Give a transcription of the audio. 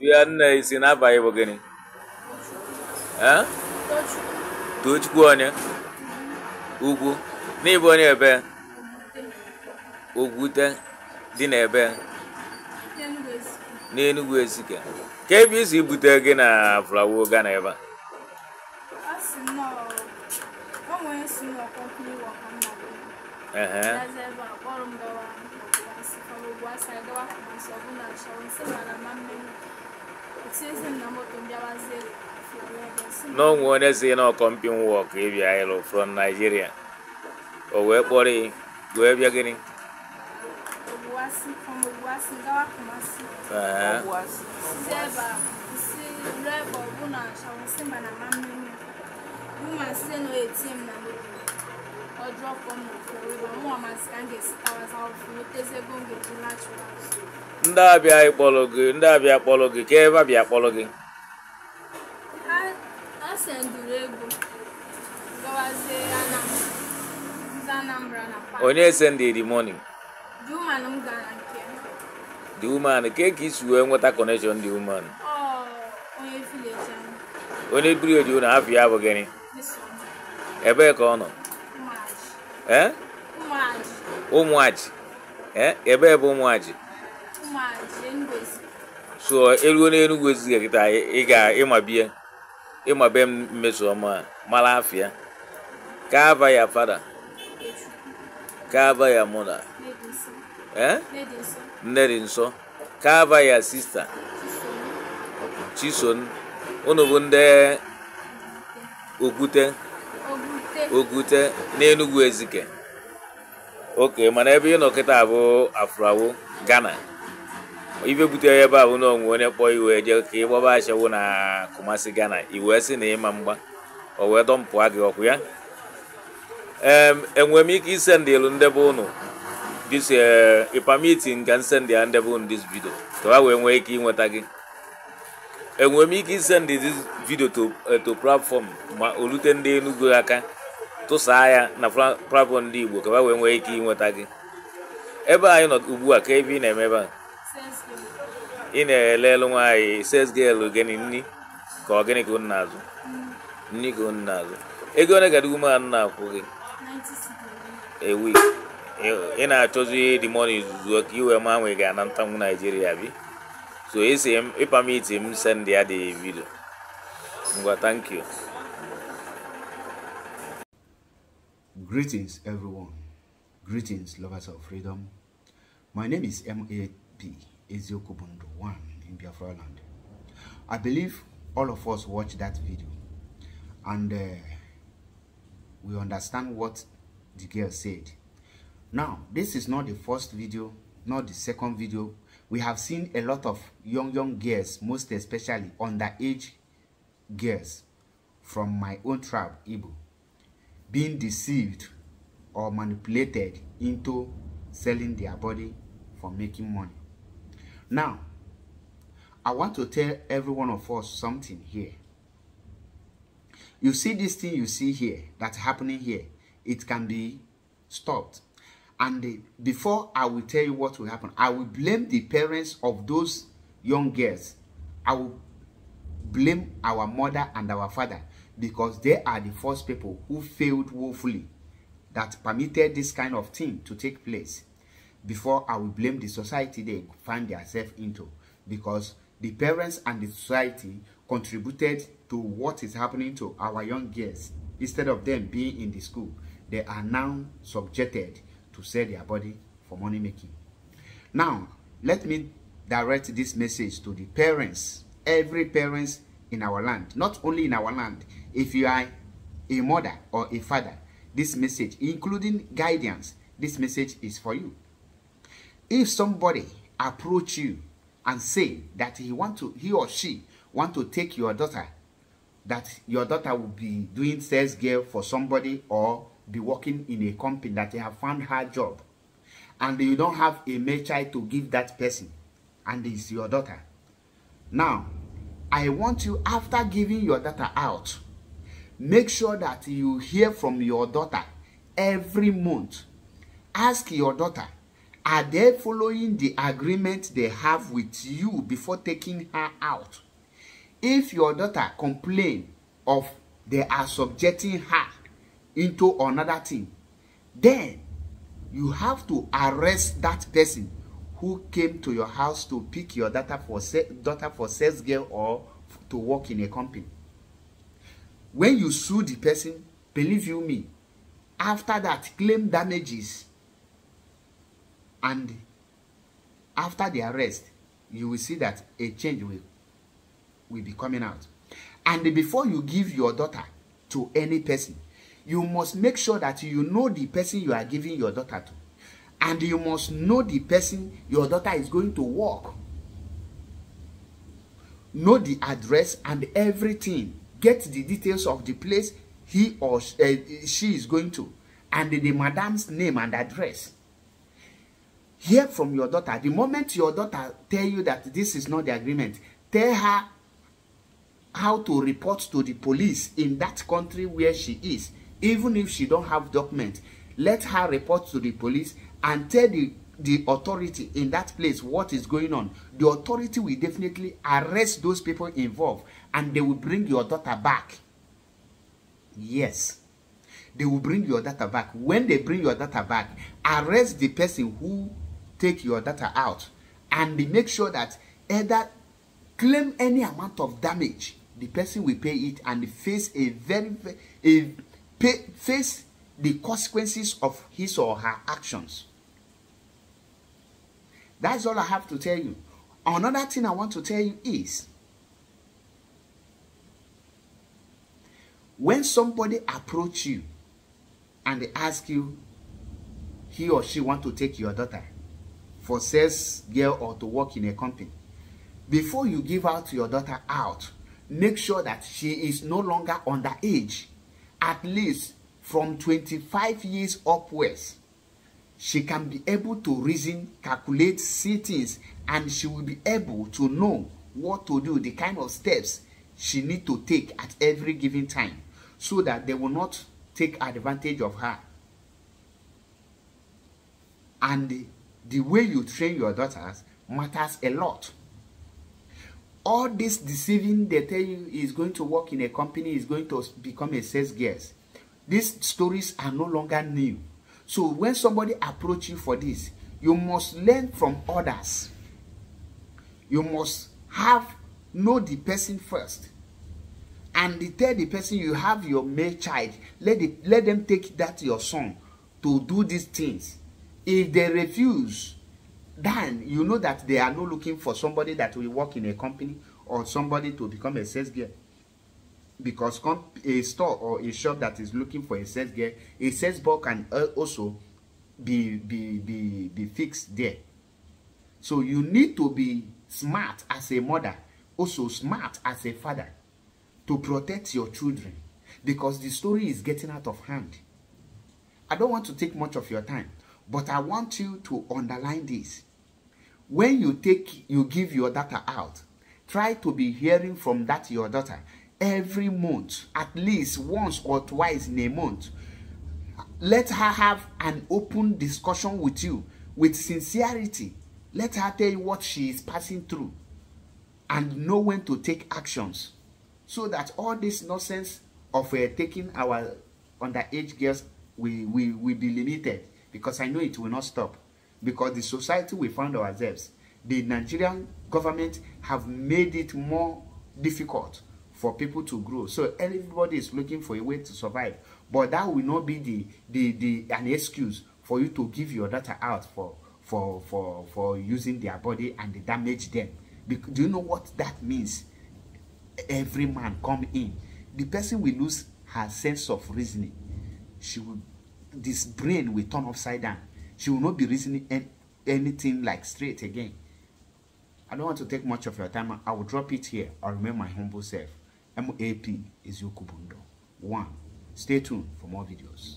Wianne isi n'abalị bụ gịnị? Tochukwu onye? Ugwu. N'ịbụ onye ebe? Ogwute dị n'ebe? N'Enugwu Ezike. Ka ebe isi bute gị na Flawo Ghana ebe a? n'onwe onye si na ọkọmpin wọk ịbịa ịlụ from Nigeria o wee kpọrọ ị wee bịa gịnị ndị abịa ịkpọrọ gị ndị abịa kpọrọ gị ka ebe abịa kpọrọ gị onye sendiri money the woman ke ka isi wee nweta connection the woman onye biri oji na afọ ya bụ gịnị ebee ka ọ nọ ee eh? ụmụaji eh, ebe bụ ụmụaji so eruo n'enugwu ezighị ị ga ịmabie ịmabe m mmesoma mara afịa ka ya fada ka ya mụna nne dị nso ka ya sista chison unu bụ ndị okwute okwute n'enugwu ezike ok mana ebe ị nọ kịta abụ afrawo Ghana ibe butere ebe abụ na onwe onye kpọọ iwe jee ka ị gbaba na Kumasi Ghana iwee sị na ịma mgba o wee dọmpụa gị ọkụ ya enwere m ike isendị elu ndebe ụnụ dis ipamitin eh, ka nsendị ya ndebe ụnụ dis vidio ka ha wee nwee ike ịnweta gị enwere m ike isendị dis vidio eh, to platform ma olute ndị Enugu aka tụsaa ya na prabọn ndị igbo ka ha wee nwee ike ịnweta gị ebe anyị nọ ugbu a ka ebe ị na-eme ebe a ị na-elelu nwaanyị ses gịl gịnị nni ka ọ gịnị ka unu na-azụ nni ka unu na-azụ ego ole ga dịgu mmadụ na-akwụ gị ewu ị na-achọzi dị mọni zuzuo ka iwe ma nwe gị ana ntanwu naijiria bi so esi ịpamiti m sendị ya dị vidio ngwa thank you Greetings, everyone. Greetings, lovers of freedom. My name is M.A.P. Eziokubundo 1 in Biafra land. I believe all of us watched that video and uh, we understand what the girl said. Now, this is not the first video, not the second video. We have seen a lot of young, young girls, most especially underage girls from my own tribe, Igbo being deceived or manipulated into selling their body for making money. Now, I want to tell every one of us something here. You see this thing you see here, that's happening here, it can be stopped. And the, uh, before I will tell you what will happen, I will blame the parents of those young girls. I will blame our mother and our father because they are the first people who failed woefully that permitted this kind of thing to take place before I will blame the society they find themselves into because the parents and the society contributed to what is happening to our young girls instead of them being in the school they are now subjected to sell their body for money making now let me direct this message to the parents every parents in our land. Not only in our land. If you are a mother or a father, this message, including guidance, this message is for you. If somebody approach you and say that he want to, he or she want to take your daughter, that your daughter will be doing sales girl for somebody or be working in a company that they have found her job, and you don't have a male child to give that person, and it's your daughter. Now, I want you after giving your daughter out, make sure that you hear from your daughter every month. Ask your daughter, are they following the agreement they have with you before taking her out? If your daughter complain of they are subjecting her into another thing, then you have to arrest that person who came to your house to pick your daughter for, daughter for sales girl or to work in a company. When you sue the person, believe you me, after that, claim damages and after the arrest, you will see that a change will, will be coming out. And before you give your daughter to any person, you must make sure that you know the person you are giving your daughter to and you must know the person your daughter is going to work know the address and everything get the details of the place he or uh, she is going to and the, the madam's name and address hear from your daughter the moment your daughter tell you that this is not the agreement tell her how to report to the police in that country where she is even if she don't have document let her report to the police and tell the the authority in that place what is going on the authority will definitely arrest those people involved and they will bring your daughter back yes they will bring your daughter back when they bring your daughter back arrest the person who take your daughter out and make sure that either claim any amount of damage the person will pay it and face a very a pay, face the consequences of his or her actions. That's all I have to tell you. Another thing I want to tell you is when somebody approach you and they ask you he or she want to take your daughter for sales girl or to work in a company before you give out your daughter out make sure that she is no longer underage at least from 25 years upwards, she can be able to reason, calculate, see things, and she will be able to know what to do, the kind of steps she need to take at every given time so that they will not take advantage of her. And the, way you train your daughters matters a lot. All this deceiving they tell you is going to work in a company, is going to become a sales guest. These stories are no longer new. So when somebody approach you for this, you must learn from others. You must have know the person first. And the tell the person you have your male child, let, the, let them take that your son to do these things. If they refuse, then you know that they are not looking for somebody that will work in a company or somebody to become a sales girl because a store or a shop that is looking for a sales gear a sales ball can also be be be be fixed there so you need to be smart as a mother also smart as a father to protect your children because the story is getting out of hand i don't want to take much of your time but i want you to underline this when you take you give your daughter out try to be hearing from that your daughter every month, at least once or twice in a month. Let her have an open discussion with you with sincerity. Let her tell you what she is passing through and know when to take actions so that all this nonsense of uh, taking our underage girls will, will, will be limited because I know it will not stop because the society we found ourselves, the Nigerian government have made it more difficult for people to grow. So everybody is looking for a way to survive. But that will not be the, the, the an excuse for you to give your daughter out for, for, for, for using their body and damage them. Because, do you know what that means? Every man come in. The person will lose her sense of reasoning. She will, this brain will turn upside down. She will not be reasoning any, anything like straight again. I don't want to take much of your time. I will drop it here. I remain my humble self. MAP is Kubundo. 1. Stay tuned for more videos.